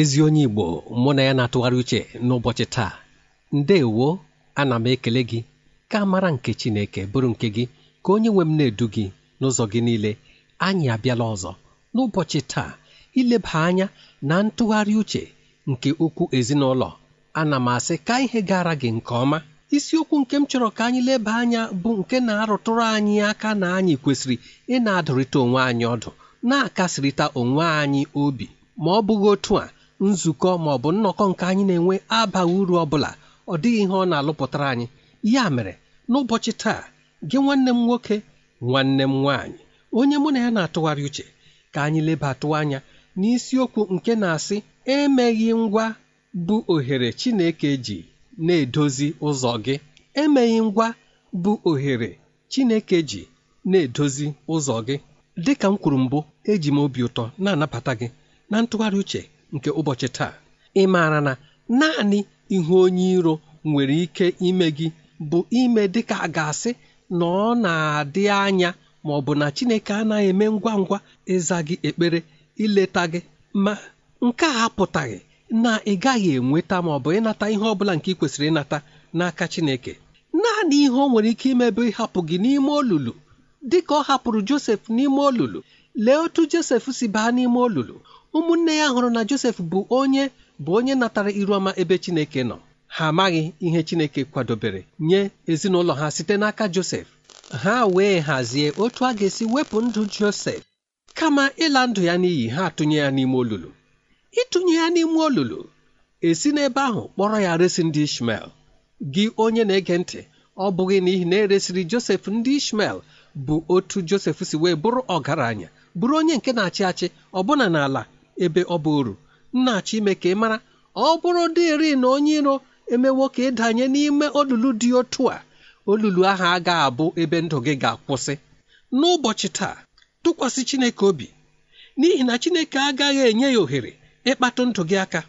ezi onye igbo mụ na ya na-atụgharị uche n'ụbọchị taa ndeewo ana m ekele gị ka amara nke chineke bụrụ nke gị ka onye nwe m na-edu gị n'ụzọ gị niile anyị abịala ọzọ n'ụbọchị taa ileba anya na ntụgharị uche nke okwu ezinụlọ ana m asị ka ihe gara gị nke ọma isiokwu nke m chọrọ ka anyị leba anya bụ nke na-arụtụrụ anyị aka na anyị kwesịrị ị na-adụrịta onwe anyị ọdụ na-akasịrịta onwe anyị obi ma ọ bụghị otu a nzukọ ma ọ bụ nnọkọ nke anyị na-enwe abaghị uru ọ bụla ọ dịghị ihe ọ na-alụpụtara anyị ya mere n'ụbọchị taa gị nwanne m nwoke nwanne m nwaanyị onye mụ na ya na-atụgharị uche ka anyị lebatụ anya n'isiokwu nke na-asị emeghị ngwa bụ ohere Chineke ji na-edozi ụzọ gị emeghị ngwa bụ ohere Chineke ji na-edozi ụzọ gị dịka m kwuru mbụ eji m obi ụtọ na-anabata gị na ntụgharị uche nke ụbọchị taa ị maara na naanị ihu onye iro nwere ike ime gị bụ ime dịka a ga-asị na ọ na-adị anya ma ọ bụ na Chineke anaghị eme ngwa ngwa ịza gị ekpere ileta gị ma nke a apụtaghị na ị gaghị enweta ma ọ bụ ịnata ihe ọ bụla nke ị kwesịrị ịnata n'aka Chineke naanị ihe ọ nwere ike imebe ịhapụ gị n'ime olulu dịka ọ hapụrụ Josef n'ime olulu lee otu josef si baa n'ime olulu ụmụnne ya hụrụ na josef bụ onye bụ onye natara ọma ebe chineke nọ ha amaghị ihe chineke kwadobere nye ezinụlọ ha site n'aka josef ha wee hazie otu a ga-esi wepụ ndụ josef kama ịla ndụ ya n'iyi ha tụnye ya n'ime olulu ịtụnye ya n'ime olulu esi n'ebe ahụ kpọrọ ya resi ndị ishmel gị onye na-ege ntị ọ bụghị n'ihi na eresiri josef ndị ishmel bụ otu josef si wee bụrụ ọgaranya bụrụ onye nke na-achị achị ọbụna n'ala ebe ọ bụ uru nna achị ime ka ị mara ọ bụrụ dịrị na onye iro emewo ka ịdanye n'ime olulu dị otu a olulu ahụ a ga-abụ ebe ndụ gị ga-akwụsị n'ụbọchị taa tụkwasị Chineke obi n'ihi na Chineke agaghị enye ya ohere ịkpatụ ndụ gị aka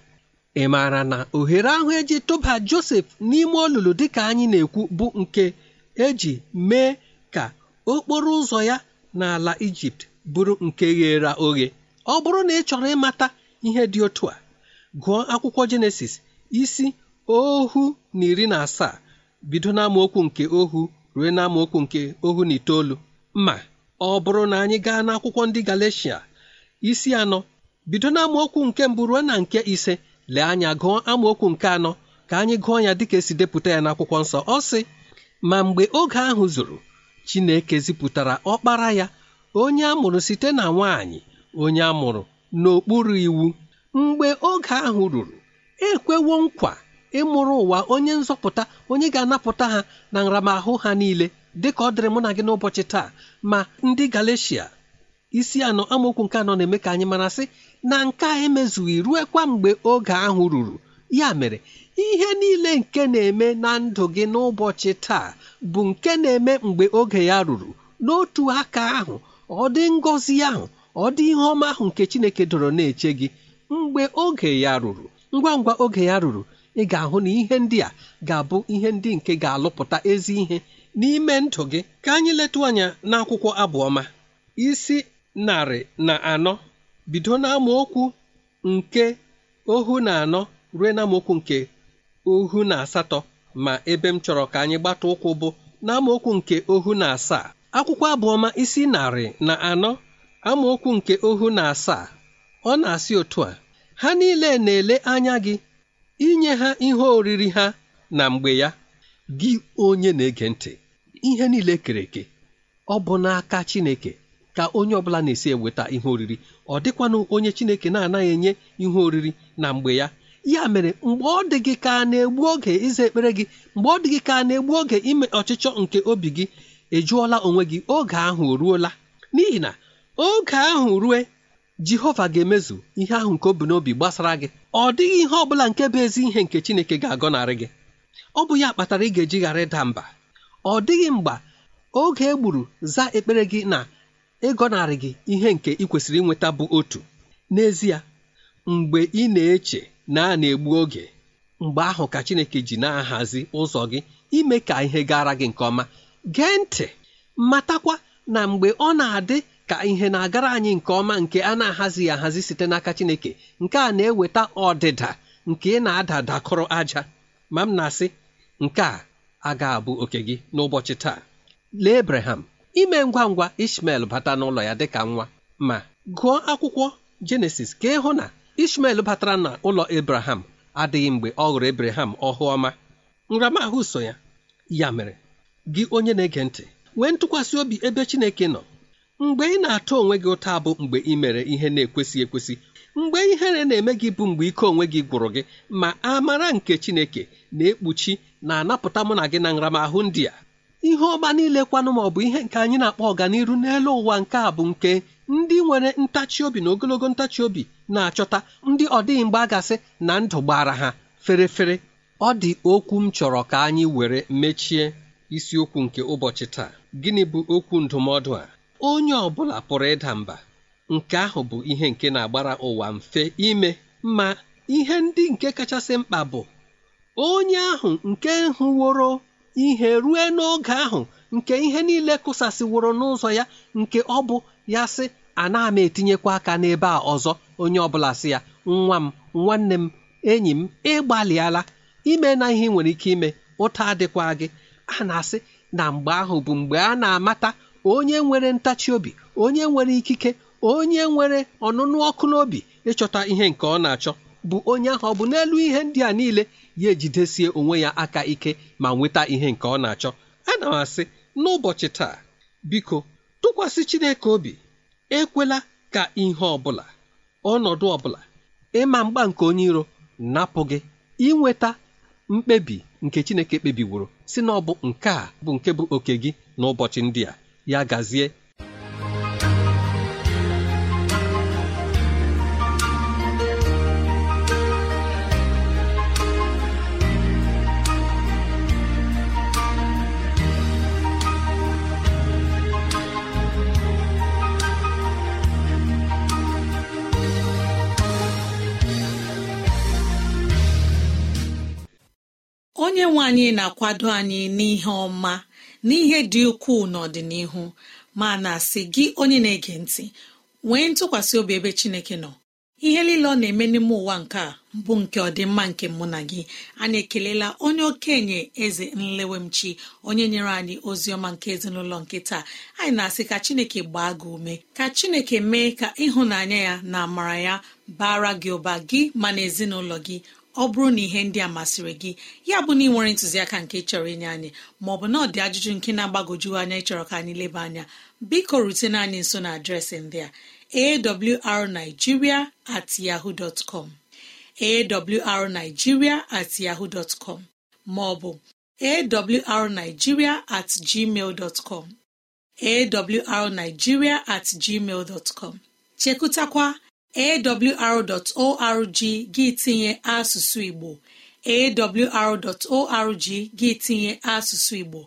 ị maara na ohere ahụ eji tụba Josef n'ime olulu dịka anyị na-ekwu bụ nke eji mee ka okporo ụzọ ya n'ala Ijipt bụrụ nke ghere oghe ọ bụrụ na ị chọrọ ịmata ihe dị otu a gụọ akwụkwọ jenesis isi ohu na iri na asaa bido n'amaokwu nke ohu ruo n'amaokwu nke ohu na itoolu ma ọ bụrụ na anyị gaa n'akwụkwọ ndị galecia isi anọ bido n'amaokwu nke mbụ ruo na nke ise lee anya gụọ amaokwu nke anọ ka anyị gụọ ya dịka esi depụta ya n'akwụkwọ nsọ ọ sị ma mgbe oge ahụ zuru Chineke zipụtara ọkpara ya onye amụrụ site na nwanyị onye amụrụ n'okpuru iwu mgbe oge ahụ ruru ekwewo nkwa ịmụrụ ụwa onye nzọpụta onye ga-anapụta ha na nramahụ ha niile dịka ọ dịrị mụ na gị n'ụbọchị taa ma ndị galecia isi anọ amaokwu nke anọ na-eme ka anyị mara sị na nke a emezughị ruekwa mgbe oge ahụ ruru ya mere ihe niile nke na-eme na ndụ gị n'ụbọchị taa bụ nke na-eme mgbe oge ya ruru n'otu aka ahụ ọ dị ngọzi ahụ ọ dị ihe ọma ahụ nke chineke dọrọ na-eche gị mgbe oge ya ruru ngwa ngwa oge ya ruru ị ga-ahụ na ihe ndị a ga-abụ ihe ndị nke ga-alụpụta ezi ihe n'ime ndụ gị ka anyị letụ anya n'akwụkwọ abụọma isi narị na anọ bido n'amaokwu nke ohu na anọ ruo n'amaokwu nke ohu na asatọ ma ebe m chọrọ ka anyị gbata ụkwụ bụ n'amaokwu nke ohu na asaa akwụkwọ abụọma isi narị na anọ amaokwu nke ohu na asaa ọ na-asị otu a ha niile na-ele anya gị inye ha ihe oriri ha na mgbe ya gị onye na-ege ntị ihe niile kere eke ọ bụ n'aka Chineke ka onye ọbụla na-esi eweta ihe oriri ọ dịkwanụ onye Chineke na-anaghị enye ihe oriri na mgbe ya ya mere mgbe ọ dị gị ka egbu oge ịza ekpere gị mgbe ọ dị gị ka a na-egbu oge ime ọchịchọ nke obi gị ị onwe gị oge ahụ o ruola n'ihi na oge ahụ rue jehova ga-emezu ihe ahụ nke obi bu n'obi gbasara gị ọ dịghị ihe ọ bụla nke bụ ezi ihe nke chineke ga-agọnarị gị ọ bụ ya kpatara ị ga-eji ghara ịda mba ọ dịghị mgbe oge e gburu za ekpere gị na ịgọnarị gị ihe nke ị kwesịrị inweta bụ otu n'ezie mgbe ị na-eche na a na-egbu oge mgbe ahụ ka chineke ji na-ahazi ụzọ gị ime ka ihe gara gị nke ọma gee ntị matakwa na mgbe ọ na-adị ka ihe na-agara anyị nke ọma nke a na-ahazighị ahazi site n'aka Chineke nke a na-eweta ọdịda nke ị na adadakọrọ aja ma m na-asị nke a aga abụ oke gị n'ụbọchị taa lee Abraham ime ngwa ngwa Ishmael bata n'ụlọ ya dịka nwa ma gụọ akwụkwọ Jenesis ka ịhụ na Ishmael batara na ụlọ Abraham adịghị mgbe ọ hụrụ Abraham ọhụ ọma nramahụ so ya ya mere gị onye na-ege ntị nwee ntụkwasị obi ebe Chineke nọ mgbe ị na-atụ onwe gị ụta bụ mgbe ị mere ihe na-ekwesị ekwesị mgbe ihere na-eme gị bụ mgbe ike onwe gị gwụrụ gị ma amara nke Chineke na-ekpuchi na-anapụta mụ na gị na nramahụ ndị a ihe ọma niile kwanụ ma ọ bụ ihe nke anyị na-akpọ ọganiru n'elu ụwa nke a bụ nke ndị nwere ntachi obi na ogologo ntachi obi na-achọta ndị ọ dịghị mgbe na ndụ gbara ha ferefere ọ dị okwu m chọrọ ka anyị were mechie isiokwu nke ụbọchị taa gịnị bụ okwu ndụmọdụ a onye ọ bụla pụrụ ịda mba nke ahụ bụ ihe nke na-agbara ụwa mfe ime ma ihe ndị nke kachasị mkpa bụ onye ahụ nke hụworo ihe rue n'oge ahụ nke ihe niile kụsasịworo n'ụzọ ya nke ọ bụ ya sị ana m etinyekwa aka n'ebe a ọzọ onye ọbụla sị ya nwa m nwanne m enyi m ịgbalịala ime na ihe nwere ike ime ụta adịkwa gị a na-asị na mgbe ahụ bụ mgbe a na-amata onye nwere ntachi obi onye nwere ikike onye nwere ọnụnụ ọkụ n'obi ịchọta ihe nke ọ na-achọ bụ onye ahụ ọ bụ n'elu ihe ndị a niile ya ejidesie onwe ya aka ike ma nweta ihe nke ọ na-achọ ana m asị n'ụbọchị taa biko tụkwasị Chineke obi ekwela ka ihe ọ bụla ọnọdụ ọ bụla ịma mgba nke onye iro napụ gị inweta mkpebi nke Chineke kpebiworo si na ọ bụ nke a bụ nke bụ oke gị n'ụbọchị ndị a ya gazie Onye na-akwado anyị n'ihe ọma n'ihe dị ukwuu n'ọdịnihu ma na-asị gị onye na-ege ntị nwee ntụkwasị obi ebe Chineke nọ ihe niile ọ na-eme n'ime ụwa nke a bụ nke ọdịmma nke mụ na gị anyị ekelela onye okenye eze nlewemchi onye nyere anyị ozi ọma nke ezinụlọ nke taa anyị na-asị ka Chineke gbaa gị ume ka Chineke mee ka ịhụnanya ya na amara ya bara gị ụba gị ma na ezinụlọ gị ọ bụrụ na ihe ndị a masịrị gị ya bụ na ị nwere ntụziaka nke chọrọ inye anyị maọbụ na ọ dị ajụjụ nke na-agbagoju anya ịchọrọ ka anyị leba anya biko rutene anyị nso na adreesị ndị a awrnigeria at Ma ọ com awrnigeria at maọbụ at gmail at gmail chekụtakwa awr.org gị tinye asụsụ igbo awr.org gị tinye asụsụ igbo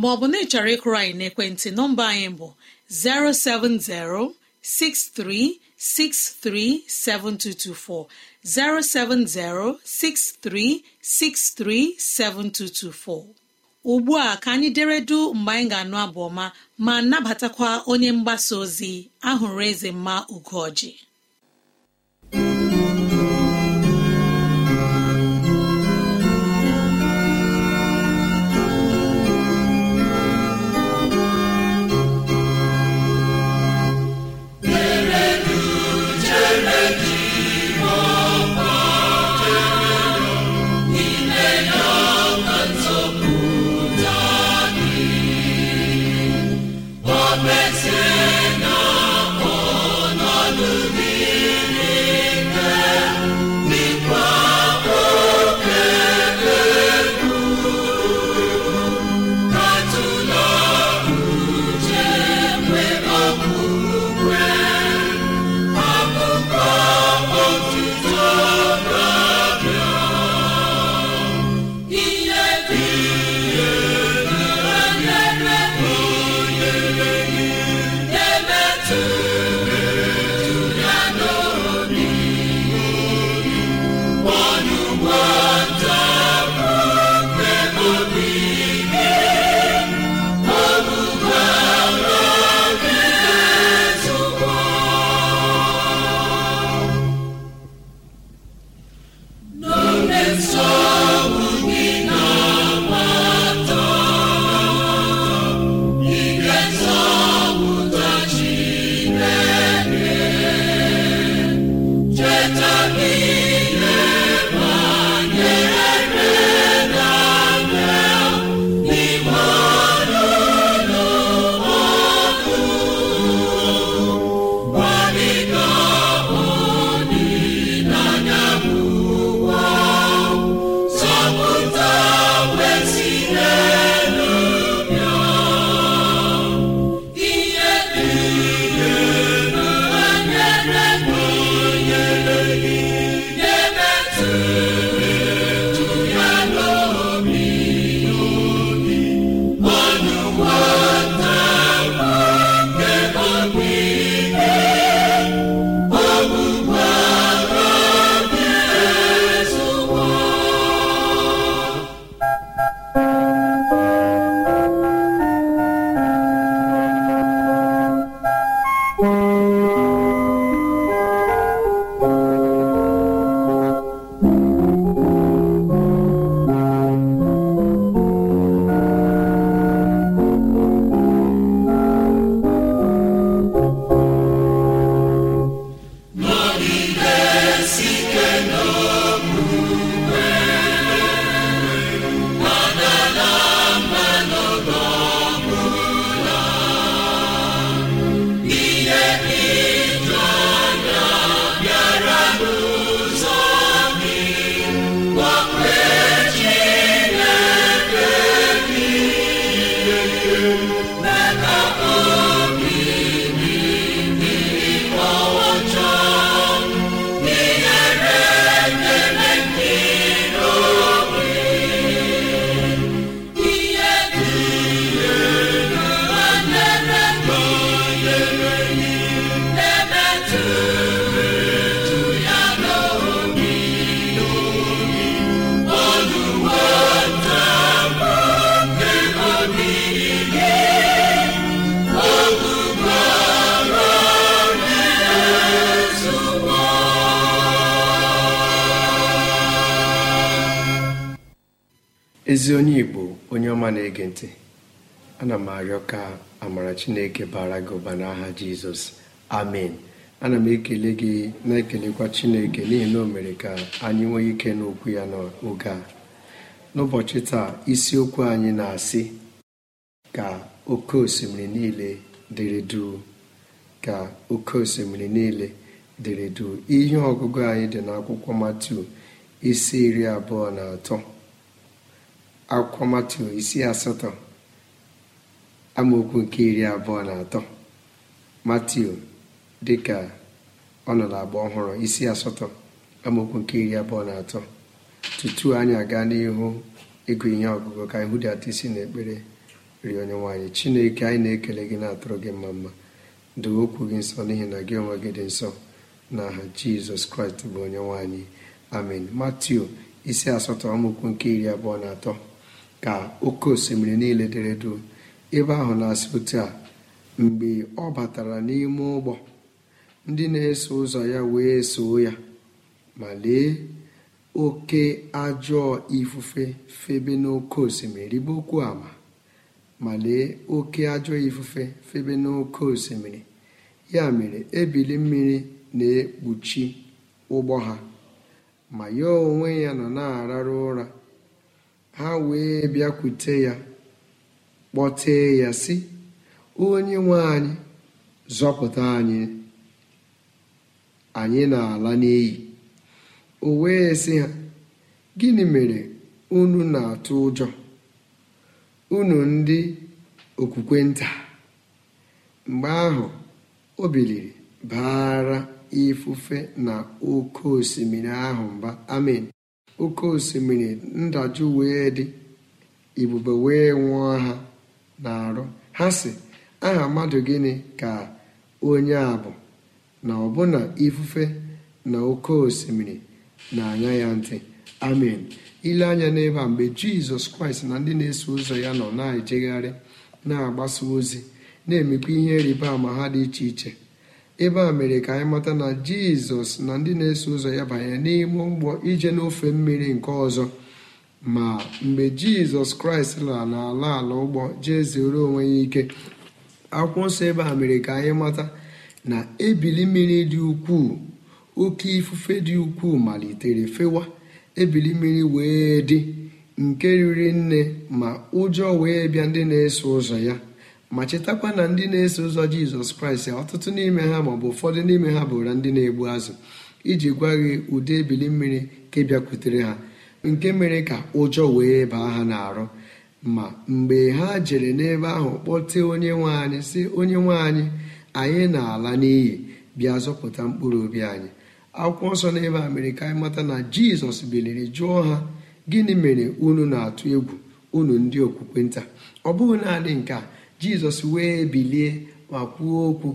maọbụ na ịchọrọ ịkụrụ anyị n'ekwentị nọmba anyị bụ 07063637224 07063637224 ugbu a ka anyị deredu mgbe anyị ga-anụ abụ ọma ma nabatakwa onye mgbasa ozi ahụrụ eze mma ugoji ezi onye igbo onye ọma na-ege ntị ana m arịọ ka amara chineke bara gị ụba n'aha jizọs amen ana m ekele gị na-ekelekwa chineke n'ihi na o mere ka anyị nwee ike n'okwu ya n'oge a n'ụbọchị taa isiokwu anyị na-asị ka oke osimiri niile dịrị duu ka oke osimiri niile dịrị ihe ọgụgụ anyị dị n'akwụkwọ matu isi iri abụọ na atọ akwụkwọ matu isi asatọ amaokwu nke iri abụọ na atọ matiu dịka ọ nọ n'agba ọhụrụ isi asatọ amaokwu nke iri abụọ na atọ tutu anyị aga n'ihu ịgụ ihe ọgụgụ ka anyị atọ isi ekpere rie onye nwaanyị chineke anyị na-ekele gị na-atụrụ gị mma mma doo okwu gị nsọ n'ihi na gị onwe gị dị nsọ na aha jizọs kraịst bụ onye nwaanyị amen matiu isi asatọ amaokwu nke iri abụọ na atọ ka oke osimiri niile dere ebe ahụ na-asị a mgbe ọ batara n'ime ụgbọ ndị na-eso ụzọ ya wee soo ya ma lee oke ajọọ ifufe febe n'oke osimiri ribe okwu ama ma lee oke ajọọ ifufe febe n'oke osimiri ya mere ebili mmiri na-ekpuchi ụgbọ ha ma ya onwe ya nọ na-ararụ ụra ha wee bịakwute ya kpọtee ya si onye nwe anyị zọpụta anyị anyị na-ala n'iyi o wee sị ha gịnị mere unu na-atụ ụjọ unu ndị okwukwe nta mgbe ahụ o biliri baara ifufe na oke osimiri ahụ mba amen oke osimiri ndajụ wee dị ibube wee nwụọ ha na-arụ ha si aha mmadụ gịnị ka onye a bụ na ọbụna ifufe na oke osimiri na-anya ya ntị amen ile anya n'ebe a mgbe jizọs kraịst na ndị na-eso ụzọ ya nọ na-ejegharị na-agbasa ozi na-emekwa ihe rịba ama ha dị iche iche ebe a mere ka anyị mata na jizọs na ndị na-eso ụzọ ya banye n'ime ụgbọ ije n'ofe mmiri nke ọzọ ma mgbe jizọs kraịst lara n'ala ala ụgbọ jee zere onwe ya ike akwụkwọ nsọ ebe a mere ka anyị mata na ebili mmiri dị ukwuu oke ifufe dị ukwuu malitere fewa ebili mmiri wee dị nke riri nne ma ụjọ wee bịa ndị na-eso ụzọ ya ma chetakwa na ndị na-eso ụzọ jizọs kraịst ọtụtụ n'ime ha maọbụ ụfọdụ n'ime ha bụra ndị na-egbu azụ iji gwa gị ụdị ebili mmiri ka bịakwutere ha nke mere ka ụjọ wee baa ha n'arụ ma mgbe ha jere n'ebe ahụ kpọtee onye nwe anyị sị onye nwe anyị anyị na-ala n'iyi bịa zọpụta mkpụrụ obi anyị akwụkwọ nsọ n'ebe a mere ka anyị mata na jizọs biliri jụọ ha gịnị mere unu na-atụ egwu unu ndị okwukwe nta ọ bụghị naanị nke a jizọs wee bilie ma kwuo okwu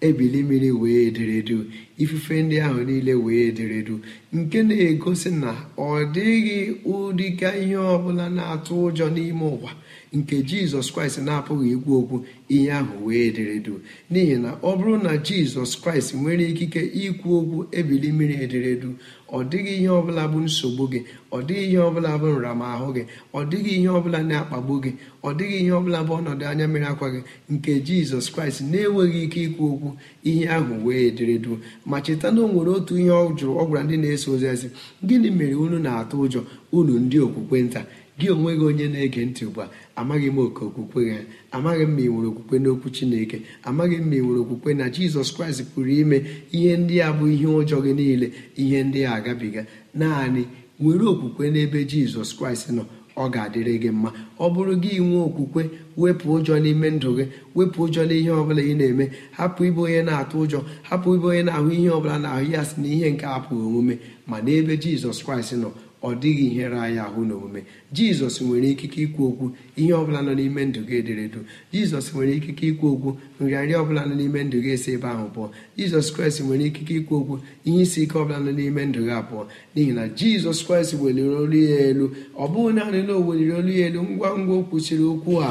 ebili mmiri wee ederedu ifufe ndị ahụ niile wee ederedu nke na-egosi na ọ dịghị ụdịka ihe ọbụla na-atụ ụjọ n'ime ụwa nke jizọs kraịst na-apụghị ikwu okwu ihe ahụ wee ederedo n'ihi na ọ bụrụ na jizọs kraịst nwere ikike ikwu okwu ebili mmiri ederedu ọ dịghị ihe ọbụla bụ nsogbu gị ọ dịghị ihe ọbụla bụ nramahụ gị ọ dịghị ihe ọbụla na-akpagbu gị ọ dịghị ihe ọbụla bụ ọnọdụ anya mmiri akwa gị nke jizọs kraịst na-enweghị ike ikwu okwu ihe ahụ wee ederedo ma cheta na o nwere otu ihe ọ jụrụ ọ gwara ndị na-eso ozi ezi gịnị mere unu na-atụ ụjọ unu ndị okwukwe nta gị onwe gị onye na-ege ntị ugbu a amaghị m oke okwukwe ya amaghị m ma ị nwere okwukwe n'okwu chineke amaghị m ma ị nwere okwukwe na jizọs kraịst pụrụ ime ihe ndị a bụ ihe ụjọ gị niile ihe ndị a agabiga naanị nwere okwukwe n'ebe jizọs kraịst nọ ọ ga-adịrị gị mma ọ bụrụ gị nwee okwukwe wepụ ụjọ n'ime ndụ gị wepụ ụjọ n'ihe ọbụla ị na-eme hapụ ibe onye na-atụ ụjọ hapụ ibe onye na-ahụ ihe ọbụla na-ahụ ya si na ihe nke apụghị omume ma n'ebe jizọs kraịst nọ ọ dịghị ihere anyị ahụ n'omume jizọs nwere ikike ikwu okwu ihe ọbụla nọ n'ime ndụ gị ederedu jizọs nwere ikike ikwu okwu nrịanrịa ọbụla nọ n'ime ndụ gị esi ebe ahụ pụọ jizọs kraịst nwere ikike ikwu okwu ihe isi ike ọbụla nọ n'ime ndụ gị abụọ n'ihi na jizọs kraịst weliri olu ya elu ọ bụghị naanị na o weliri olu ya elu ngwa ngwa o kwụsịrị okwu a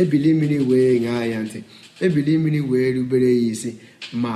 ebili mmiri wee ṅaa ya ntị ebili mmiri wee rubere ya isi ma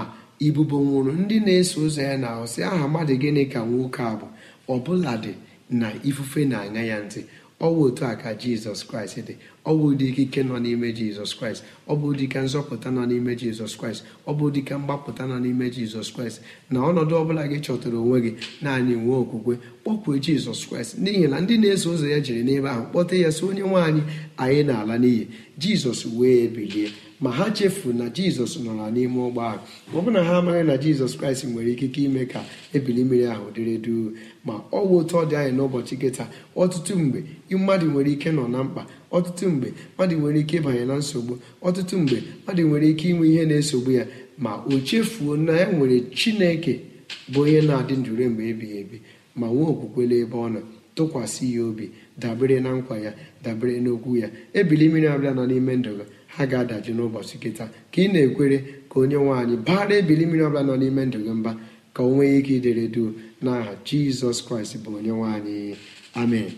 ibubo nwụrụ ndị na-eso ụzọ ya na ahụ sị aha mmadụ gịnị ka nwoke a bụ ọbụladị na ifufe na-aṅa ya ntị ọwụ otu a ka jizọs kraịst dị ọ ụdị ikike nọ n'ime jizọs kraịst ọ bụ ụdịka nzọpụta nọ n'ime jizọs kraịst ọ bụ ụdịka mgbapụta nọ n'ime jizọs kraịst na ọnọdụ ọbụla gị chọtara onwe gị naanị nwee okwukwe kpọkwuo jizọs kraịst n'ihi na ndị na-eso ụzọ ya jiri n'ebe ahụ kpọta ya si onye nwaanyị anyị na-ala n'iyi jizọs wee bilie ma ha chefu na jizọs nọra n'ime ụgbọ ahụ ma ọ bụ na ha amaghị na jizọs kraịst nwere ikike ime ka ebili mmiri ahụ dịrị duu ma ọ bụ otu ọ dị anyị n'ụbọchị kịta ọtụtụ mgbe mmadụ nwere ike nọ na mkpa ọtụtụ mgbe mmadụ nwere ike ịbanye na nsogbu ọtụtụ mgbe mmadụ nwere ike inwe ihe na-esogbu ya ma o chefuo na ya e nwere chineke bụ onye na-adị ndụre mgbe ebighị ebi ma nwee okwukwele ebe ọ nọ tụkwasị ya obi dabere na nkwa ya dabere n'okwu ya ebili mmiri abịa n'ime ndụ gị ha ga-adaji n'ụbọchị kịta ka ị na-ekwere ka onye nwanyị baara ebili mmiri ọbụla nọ n'ime ndụ gị mba ka o nwee ike idere duu n'aha jizọs kraịst bụ onye nwanyị amen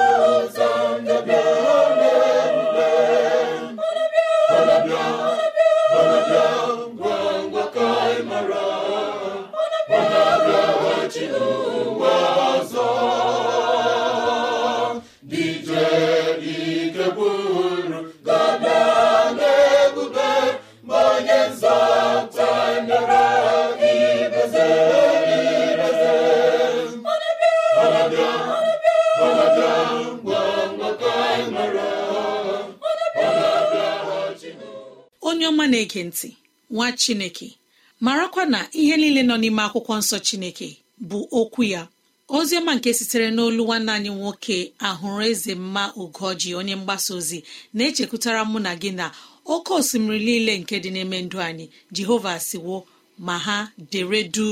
Rosa. chineke ntị nwa chineke marakwa na ihe niile nọ n'ime akwụkwọ nsọ chineke bụ okwu ya oziọma nke sitere n'olu nwanne anyị nwoke ahụrụ eze mma ugoji onye mgbasa ozi na-echekwutara mụ na gị na oke osimiri niile nke dị n'ime ndụ anyị jehova siwo ma ha deredu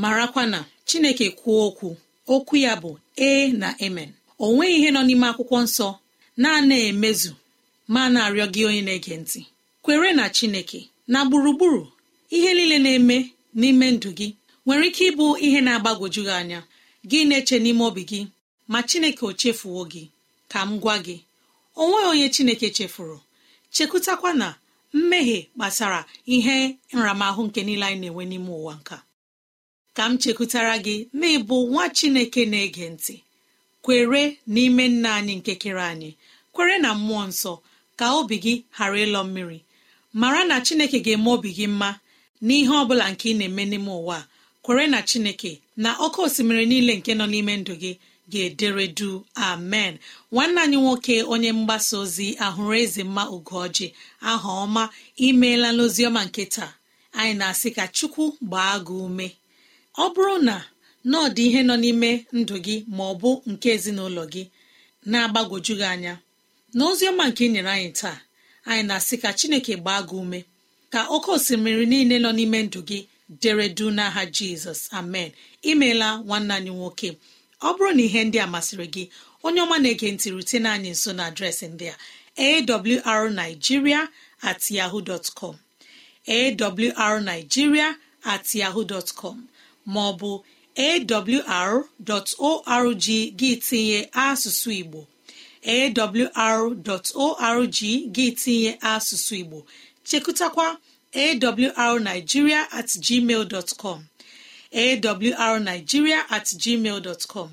marakwa na chineke kwuo okwu okwu ya bụ ee na emen o nweghị ihe nọ n'ime akwụkwọ nsọ na-ana emezu ma na-arịọ gị onye na-ege ntị kwere na chineke na gburugburu ihe niile na-eme n'ime ndụ gị nwere ike ịbụ ihe na agbagoju gị anya gị na-eche n'ime obi gị ma chineke o chefuwo gị ka m gwa gị onweghị onye chineke chefuru chekwutakwa na mmehie kpatara ihe nramahụ nke niile anyị na-enwe n'ime ụwa nka ka m chekwutara gị na ịbụ nwa chineke na-ege ntị kwere n'ime nna anyị nke kere anyị kwere na mmụọ nsọ ka obi gị ghara ịlọ mmiri mara na chineke ga-eme obi gị mma n'ihe ọ bụla nke ị na-eme n'ime ụwa kwere na chineke na ọkụ osimiri niile nke nọ n'ime ndụ gị ga-edere du amen nwanne anyị nwoke onye mgbasa ozi ahụrụ eze mma ugoji aha ọma imeela n'oziọma nke taa anyị na-asị ka chukwu gbaa gị ume ọ bụrụ na ọ dị ihe nọ n'ime ndụ gị ma ọ bụ nke ezinụlọ gị na-agbagwoju gị anya n'oziọma nke ị nyere anyị taa anyị na-asị ka chineke gbaa gị ume ka oke osimiri niile nọ n'ime ndụ gị dere du n'aha jizọs amen imeela nwanna anyị nwoke ọ bụrụ na ihe ndị a masịrị gị onye ọma na-ege ntị rutene anyị nso na adreesị ndị a arigiria at yahoo dot com com maọbụ awr.org gị tinye asụsụ igbo awr.org gị tinye asụsụ igbo chekụtakwa awrnigeria at gmail dot com awrnigeria at gmail dot com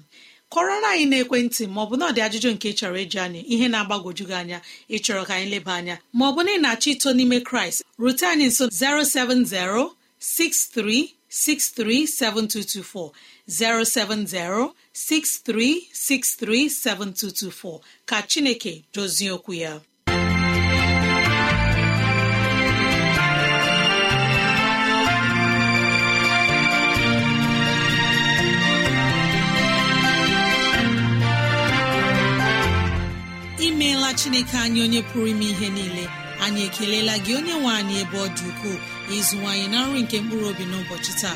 kọrọ anyị na-ekwentị maọbụ na ọ dị ajụjụ nke chọrọ ịjụ anyị ihe na-agbagwoju gị anya ịchọrọ ka anyị leba anya maọbụ na ị na-achọ ito n'ime kraịst rute anyị nso 070 6363 7224 070-6363-7224 ka Chineke dozie okwu ya. imeela chineke anyị onye pụrụ ime ihe niile anyị ekelela gị onye nwe anyị ebe ọ dị ukwuu ịzụwanyị na nri nke mkpụrụ obi n'ụbọchị taa